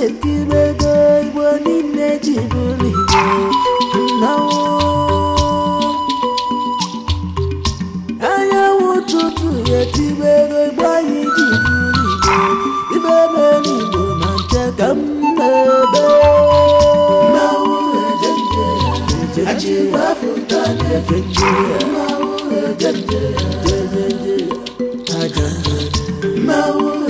na-etiri ego igbo niile ji bụrụ igbo nnọwụ anyanwụ ụtụtụ ga-etiri ego igbo anyị ji bụrụ igbo ibe n'elu igbo na nke ka m na-ebe achịwafụta na-efe nje mmanwụ eje nje aga mmanwụ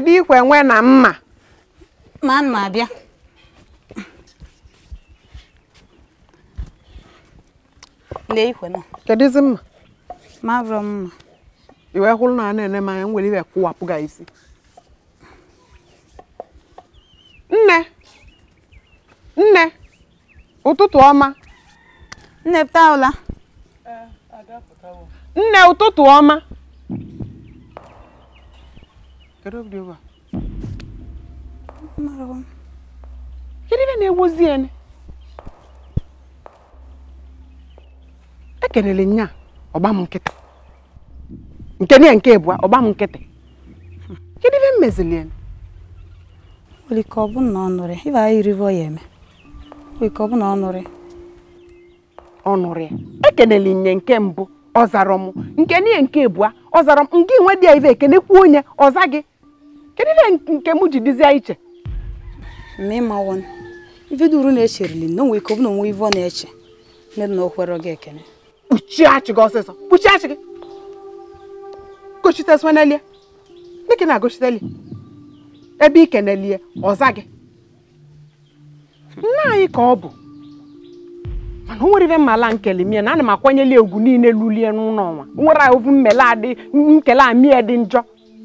ebe ikwe nwe na mma ma mma bịa lee ikwe na kedụzi mma marọ mma iwe hụrụ na na-ene m nwere iwe kụwapụ gị isi nne nne ụtụtụ ọma nne pụta ụla eh, nne ụtụtụ ọma Kedu obi ebe a? Mmarọ ibe na-egwozi ya Ekelele nya ọgba m nkịtị. Nke niile nke ịbụa ọgba m nkịtị. Kedu ibe m mezili ya? Nwere ike ọ bụ na ọ nụrị, ya anyị irivo ya eme. Nwere ike ọ bụ na ọ nụrị. Ọ Ekelele nye nke mbụ ọ zara m nke niile nke ịbụa ọ zara m nke inwe dị ya ibe ekene kwuo onye ọza gị kedu ihe nke m ji dịzie iche ma ịmawon ife dị uru na-echerili na onwe ike ọ bụ na onwe ive ọ na-eche nne na okwere gị ekene kpuchie achị gị ọsịsọ kpuchie achị gị gochite swanelie dịka na-agochiteli ebe ike na-elie ọza gị nna anyị ka ọ bụ mana o nwere ife mmala nkele mie na ana m akwanyeli egwu niile lulie n'ụlọ ọnwa nwere ovu mmele adị nkele amie dị njọ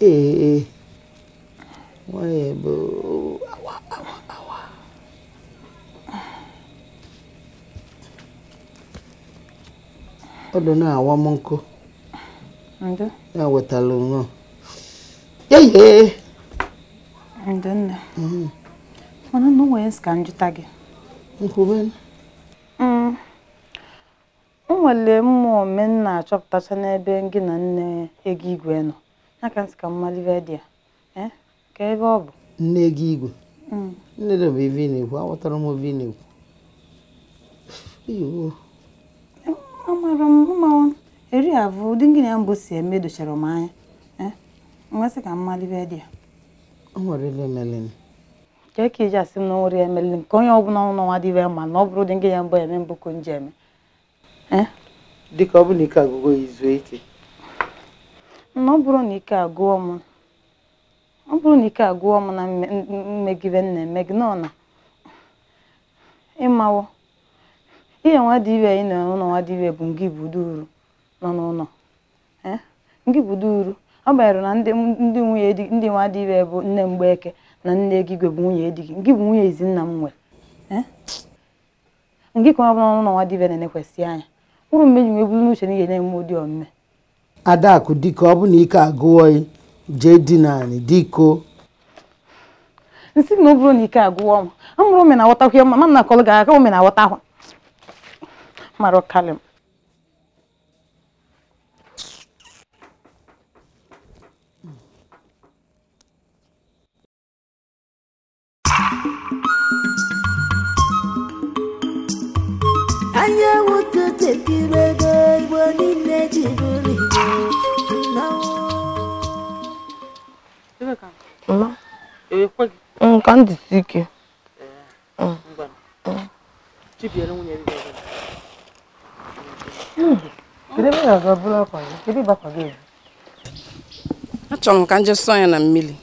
ee nwanyị bụ awa awa awa ọ dị na-awa m nkụ ya wetara nwa yeye ndịnne mana na onwe ka njụta gị nkwube mm. o nwere mmụọ me achọpụtacha n'ebe gị na nne ego igwe nọ na ka mmadụ ibe dị ya eh? ka ebe ọ bụ nne gị igwe mm. nne dị bụ ive na-ekwu aghọtara m ive na-ekwu eh, amara m mmanwụ eri avụ ụdị ngịnị ya mbụ si eme dochara m anya mmasị eh? ka mmadụ ibe dị ya o nwere ive melin ka ka iji asị m na onwere melin quando eu ọbụla não n'ọnwa dị mal, não na ọ bụrụ ụdị nem ya mbụ eme mbụ nica gogo dịka na ọ bụrụ na ike agụọ m ọ bụrụ na ike agụọ m na mmegide m na-eme gị nọ na ịmawo ihe nwa dị iwe anyị nọ n'ụlọ nwa dị iwe bụ ngị budu uru nọ n'ụlọ eh? ngị budu uru ọ banyere na ndị nwunye ndị nwa dị iwe bụ nne mgbeke na nne egigwe bụ nwunye di gị ngị bụ nwunye izi nna m nwere eh? ngị ka ọ bụla n'ụlọ nwa dị iwe na-enekwesị anya ụrụ mgbe ji nweburu n'uche ihe na-eme ụdị omume adakụ ka ọ bụ na ike agụwọghị jee na anyị diko nsị na ọ bụrụ na ike agụọ m amụrụ ome na aghọtakwa ya mma m na gara aga aka ome mara ọkalị achọrọ m ka nje sọ ya na mmiri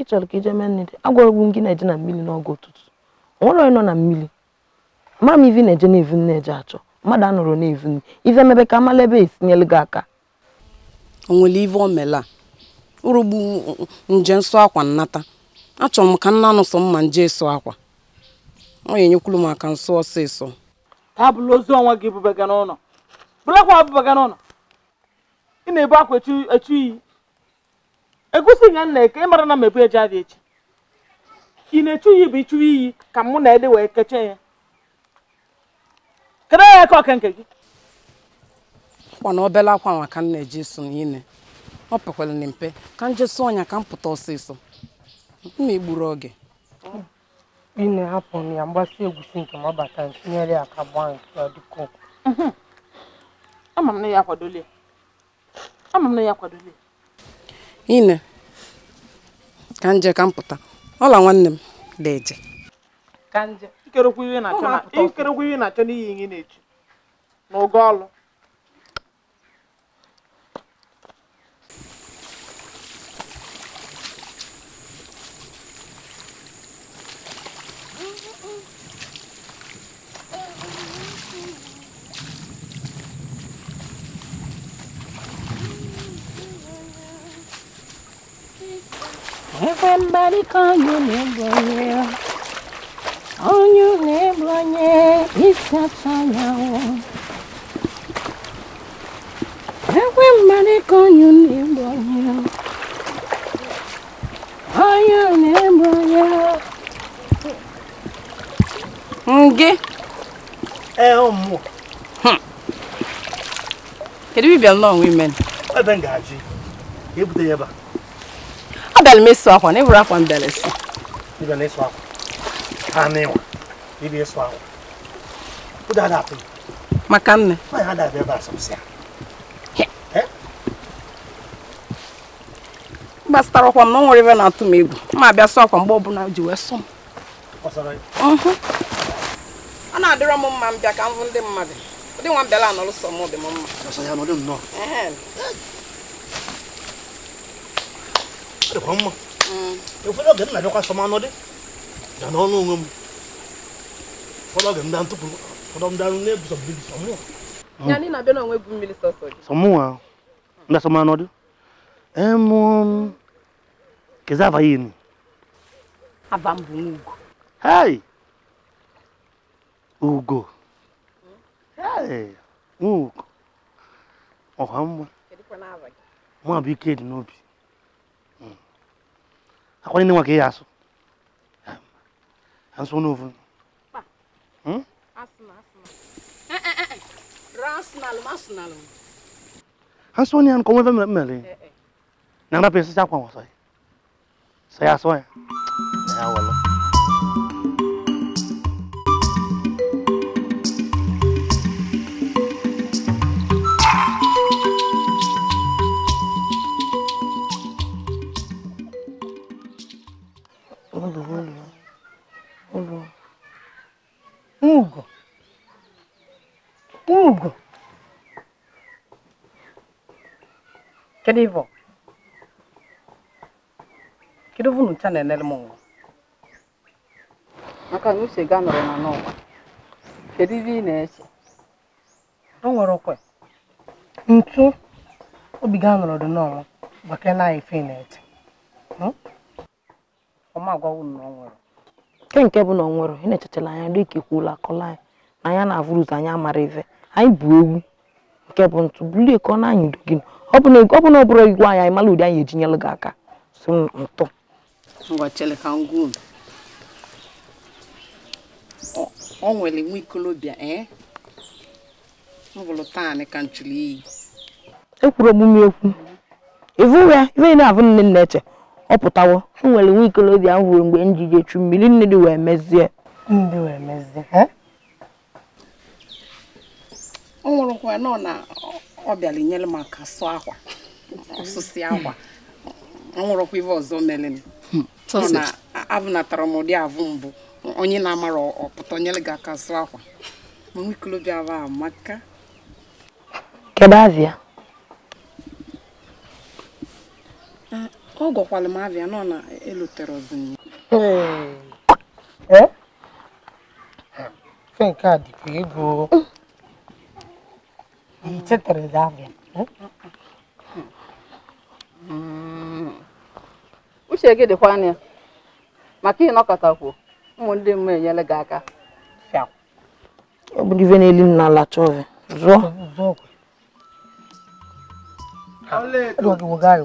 ị chọrọ ka ije mee nne dị agwagwu gị na-eje na mmiri n'oge ụtụtụ onwere onye nọ na mmiri mara m ivi na-eje na evu na-eje achọ mmadụ anọrọ na evu nne ive mebe ka amala ebe esinyelu gị aka o nwere ive o mela urugbu nje nsọ akwa nnata achọrọ m ka nna nụ sọ mma nje sụọ akwa ọ ya enyekwuru m aka nsọ ọsịsọ taa bụla ozu ọnwa gị bụ ebubaga n'ụlọ bụ ọbụbaga n'ụlọ ị na-ebu akwa echu iyi egusi ya nna eke ịmara na mebu eje adị echi ị na-echu iyi bụ ịchụ iyi ka mụ na ede wee keche ya kedu ya aka ọka nke gị kwana obele akwa maka nna m na-eji so n'ine ọ pekwala na mpe ka m ọnya ka m pụta ọsịsọ m na-egburu oge ị na-ahapụ ya mgbasị nke ma ọ bata tinyere ya ka gbaa nke ọ dịka ụkwụ ama ya akwadola ama ine ka nje ka m ọla nwanne m da eje ka nje ikerekwu ihe na-achọ n'ihi ihe na-echu n'oge ọlụ everybody call you Neblonye. On you yeah, it's a fire. Everybody call you Neblonye. On you Neblonye. Nge. Elmo. Eh, hmm. Kedu bibia nnọọ nwe imen? Ebe ngaji. Ebute ya ebe a. a m ịsụ akwa na ịbụrụ akwa m bịara esi maka nne gbasatara ọkwa m na ọ nwere na-atụ m egwu ma abịa sụọ akwa mgbe ọbụla ji wee sụọ m ọ na-adịrọ m mma m ka m bụ ndị mmadụ nwa m bịara mma dịkwa mma ụfọdụ oge m na-abịakwa dị ga n'ọnụ onwe m ụfọdụ oge m ntụpụ ụfọdụ m darụ na mmiri ndị sọmanụ dị emụ m ugo dị n'obi akɔni ne wa k'e y'a so an so n'o fun. an so ni an kɔmɔ fɛn minɛ minɛ le nana pe sisan kɔn wasa ye saya sɔn ye saya wala. gburugburu ụlọ ugo ugo kedu ivo kedu vunu na-enere m nwa maka na ga nọrọ na n'ụwa kedu ibe na-eche o nwere okwe ntu obi ga nọrọ dị n'ọnwa gbakere na ife na ọma na ọ nwụrụ nke nke bụ na ọ nwụrụ ị na anya dịka kwuola akọla anyị na anya na-avụrụ ụzọ anyị amara ife anyị bụ ewu nke bụ ntụ bulie ka ọ na-anyịdo gị ọ bụ na ọ bụrụ igwe anyị anyị mara ụdị anyị ejinyelụ gị aka so ntụ nwere nwa eh? ọ pụtawo enwere nwa ikolobịa m hụrụ mgbe m ji mmiri ndị wee mezie ọ nwụrụkwa nọ na ọ bịara m aka akwa ọsụsị nwụrụkwa ọzọ mere na abụnatara m ụdị avụ mbụ onye na-amara ọpụta azịa ọ gwọkwalụ m abịa nọ na elutere ọzọ eh? fe nke a dịkwa ego ichetara abịa eh? hmm. uche gị dịkwa anya maka ịnọkọtakwu enyere gị aka ọ ife na-eli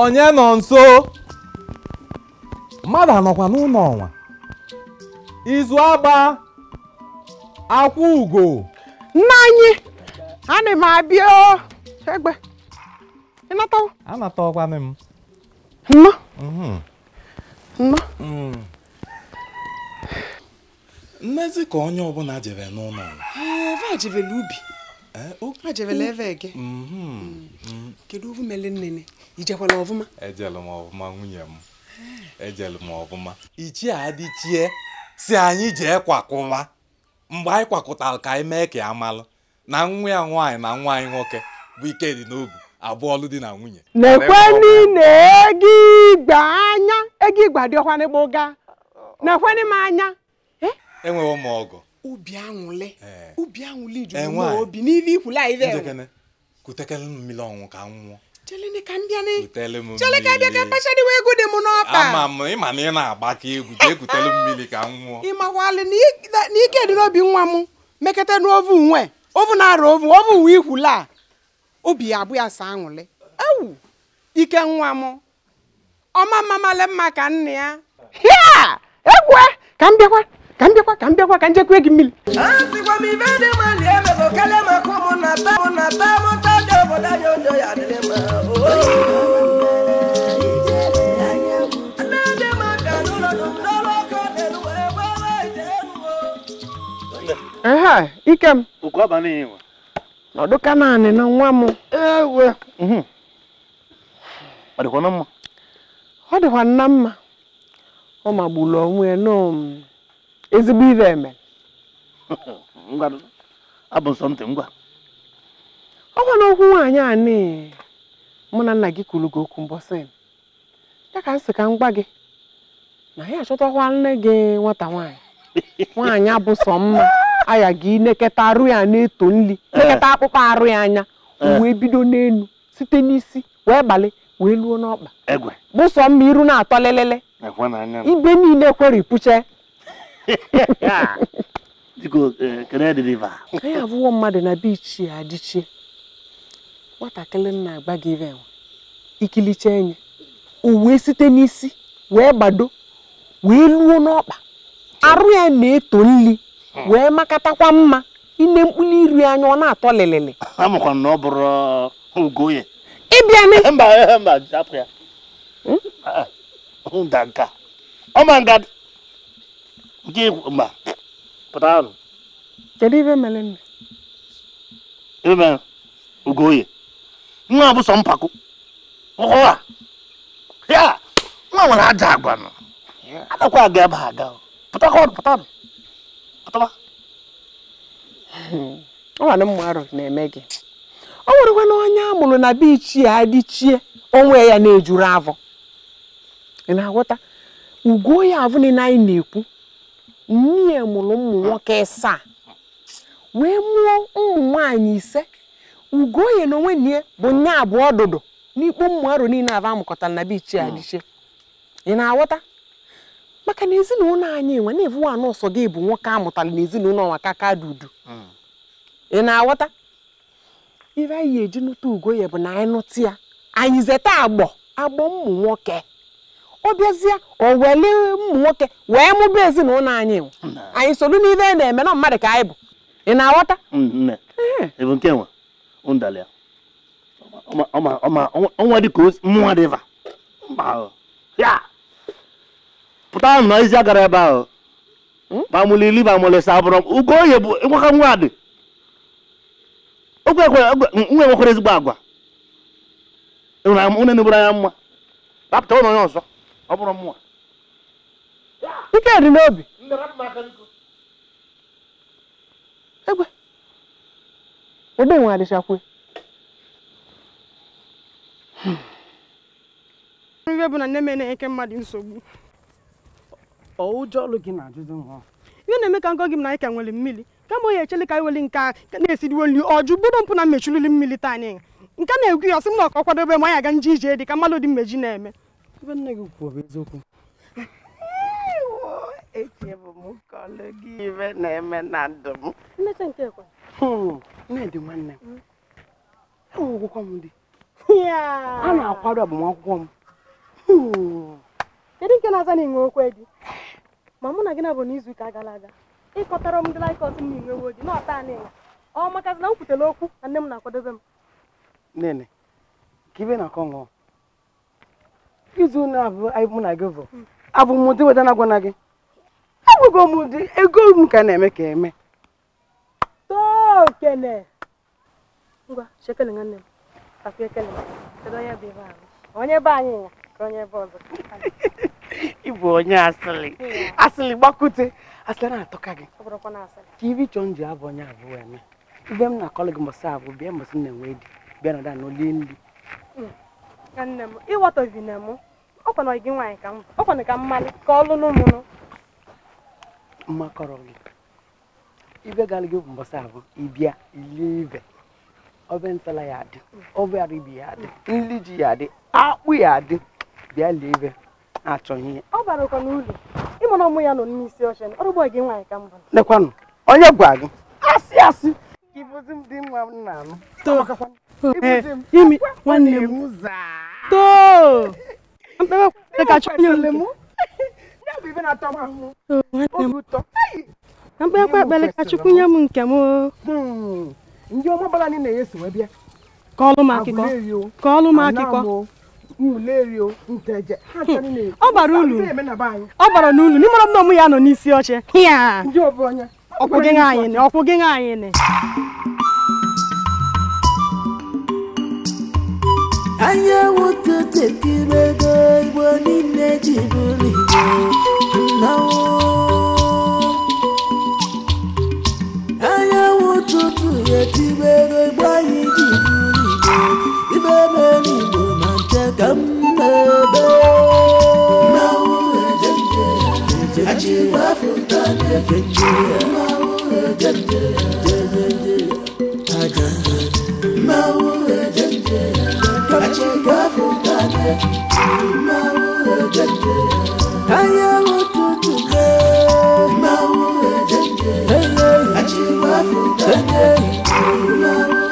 onye nọ nso mmadụ anọkwa n'ụlọ ọnwa izu agba akwụ ugo nna anyị ana m abịa egbe ịnatawo anataọkwanị m nnọ mhm. nnọ mm. mmezi ka onye ọbụla jere n'ụlọ ọnwa ee a jevela ubi na ebe ege kedu ovumele nnene ijekwala ọvụma ejelu m ọvụma nwunye m ejelu m ọvụma ichie adịchie si anyị jee kwakụwa mgbe anyị kwakụtara ka anyị mee ka ya malụ na nwa ya nwaanyị na nwa anyị nwoke bụ ike dị n'obi abụọ ọlụ dị na nwunye nekwenu na ego igba anya ego igba dị ọkwa n'igbo ga nekwenu m anya enweghị m ọgụ ubi aṅụlị ubi aṅụlị juru n'obi n'ihe ikwule anyị dị kutekele m mmiri ọnwụ ka m nwụọ chelene ka m bịa ne chele ka bịa ka mkpacha dịwa egwu dị m n'ọkpa ama m ịma na ị na-agba ka egwu jee kutele mmiri ka m nwụọ ịmakwalị na ike dị n'obi nwa m mekata n'ovu nwe ovu na-arụ ovu ovu uwe ikwule a obi ya abụ ya sa aṅụlị ewu ike nwa m ọma mma male mma ka nna ya egwe ka m bịakwa ka m bịakwa ka m bịakwa ka m gị mmiri mma na ehe ike m ọdụka naanị na nwa m ewe ọ mhm. dịkwa na mma ọ dịkwa nna mma ọ magburu onwe n'om mm. ezigbo ibe eme ọ gwa na okwu nwaanyị a mụ na nna gị kwuru gị okwu mbọsị ya ka m sị ka m gwa gị na ya achọtakwa nne gị nwata nwaanyị nwaanyị abụ sọ mma aya gị neketa arụ ya na-eto nri eh. neketa akpụkpọ arụ ya anya eh. wee bido n'elu site n'isi wee gbalị wee luo n'ọkpa bụsọ mma iru na-atọ lelele ibe niile kweripụche anyị abụọ mmadụ na bichi adịchie nwatakịrị na-agba gị ive ikilicha enyi o wee site n'isi wee gbado wee luo n'ọkpa arụ ya na-eto nri wee makatakwa mma ine mkpụrụ iri anya ọ na-atọ lịlịlị ịbịa na nke mba pụta arụ kedu ibe mere nne ife mere ogoye nwa bụ sọ mpako ụwa ya nwa nwere aja agwa nọ adakwa aga ebe aga pụtakwa ọrụ pụta arụ pụtaba ọnwanụ mma arụ na-eme gị ọ nwerekwa na onye amụrụ na bichi ichie adịchie onwe ya na-ejuru avọ ị na-aghọta ugo ya avụ niile anyị na-ekwu nne mụrụ ụmụ nwoke saa wee mụọ ụmụ nwaanyị ise ugoye na onwe nne bụ nye abụọ ọdụdụ n'ikpo ụmụ arụ niile aba amụkọtara na bichi adịche ị na-aghọta maka na ezinụlọ anyị nwe na anụ ọsọ gị bụ nwoke amụtara na ezinụlọ nwa ka dị udu hmm. ị na-aghọta ihe anyị eji nụta ugoye bụ na anyị nụta ya anyị zeta agbọ agbọ ụmụ nwoke ọ bịazie o weli ụmụ nwoke wee mụba ezinụlọ anyị anyị solu n'ihe na-eme na mmadụ ka anyị bụ ị na-aghọta pụta na izi ebe ahụ bamụlili bamụlisa bụrụ dị ezigbo agwa ụnụ na anya mma ụlọ onye ọzọ ọ bụrụ mmụọ ike dị n'obi egbe ebe nwe adịchakwe hmm. ihe bụ na nne m na-enye mmadụ nsogbu ụjọ ọlụ gị na-ajụjụ nwa ihe na-eme ka ngọ gị m na anyị nwere mmiri kama onye echele ka anyị wele nke a na-esiriwo nri ọjụ bụrụ mpụ na mmechulili mmiri taa anyị nke na-egwu ya ọsị m na ọkọ kwadobe m anyị aga nje ije dị ka mmadụ dị mmeji na-eme ebe nne gị kwuo bụ eziokwu echebụ m ka kọlụ gị ibe na-eme na ndụ m nnedị nwanne m enwegwụkwa m di a na-akwado agbamakwụkwọ m kedu nke na-aza na inwe okwe gị ma mụ na gị na abụ n'izu n'izuụka gara aga ịkọtara m ndị laikọs m na inwewo gị na ọta anị ọ makazi na m kwutere okwu na nne m na-akwadobe m nene ka ibe na-akọ ṅụọ izu na abụ na gị bụ abụ m ụdị weta na na gị abụgo m ụdị ego m ka na-eme ka eme tokele ngwa shekele m ekele onye ebe ahụ onye anyị ka onye ebe ọzọ ịbụ onye gbakute na-atụka gị ka ibi chọọ nji abụ onye na gị mbọsị abụ bịa mbọsị enwe di nri mm. ka nne m nne m ọ ọkwana gị nwaanyị ka m ọkwana ka mmalụ ka ọ lụnụ mụnụ mmakọrọ gị ibe gara gị mbọsị ahụ ịbịa ilie ibe ọbe ntala ya adị ọbe aribi ya dị, nri ji ya adị akpụ ya dị, bịa lie ibe na-achọghị ihe ọ bara ụkọ n'ụlọ ịmụrụ ọmụ ya nọ n'isi oche ọrụgbọ gị nwaanyị ka mbụ lekwanụ onye gwa gị asị asị ka ịbụzi dị nwa m na-anụ Eh, imi nwanne m too mkpere na mkperekwa ekpere ka chukwu nke m hmm. ka akụkọ ka akụkọ hmm. ọ bara ulu ọ bara n'ulu n'ịmara m na ọmụ ya nọ n'isi oche ọkwụ gị anyị ọkwụ gị anyị anyanwụ tụtụ kirigo igbo niile ji bụrụ igbo